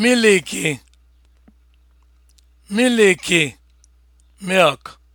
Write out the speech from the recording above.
miliki miliki milk